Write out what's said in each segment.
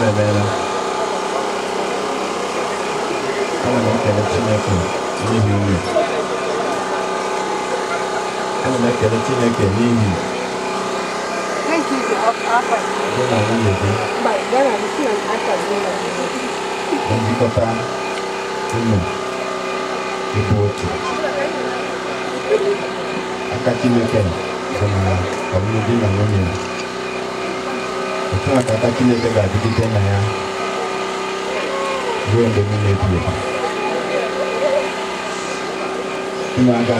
emebela ana m ekele chineke n'ihi nri ana m chineke gị na nwunye gị njikọta unu ịbụ otu aka chineke dị na ọmụmụ nnabata Chineke ga-adịgide na ya ruo mgbe niile ebi ebi unu aga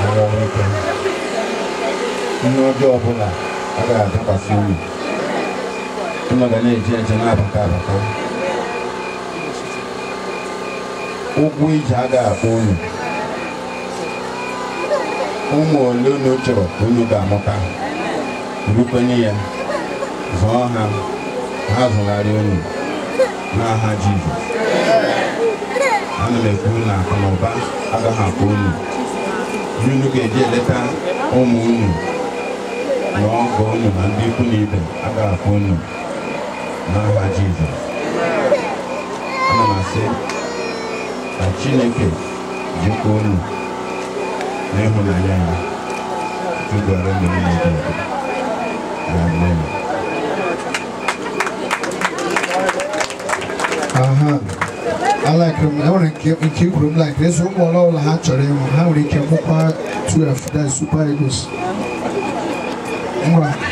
arụ ọrụ ike ihe ọjọọ ọbụla agaghị adakwasị unu unu ga na-eji eje na-abata abata ụgwọ ije agaghị akpọ unu ụmụ ole unu chọrọ ka unu ga-amụta rukwenye ya zọọ ha ha zọgharịa unu n'aha Jizọs ana m ekwu na akụ na ụba agaghị akpa unu ihe unu ga-eji eleta ụmụ unu na ọgọ unu na ndị ikwu na ibe agaghị akpa unu n'aha Jizọs ana m asị ka Chineke jikwa unu n'ịhụnanya ya tụgara ụmụ niile dị Amen. aha I like them. I want to keep, keep them like this. One more all hatchery. How they can move to that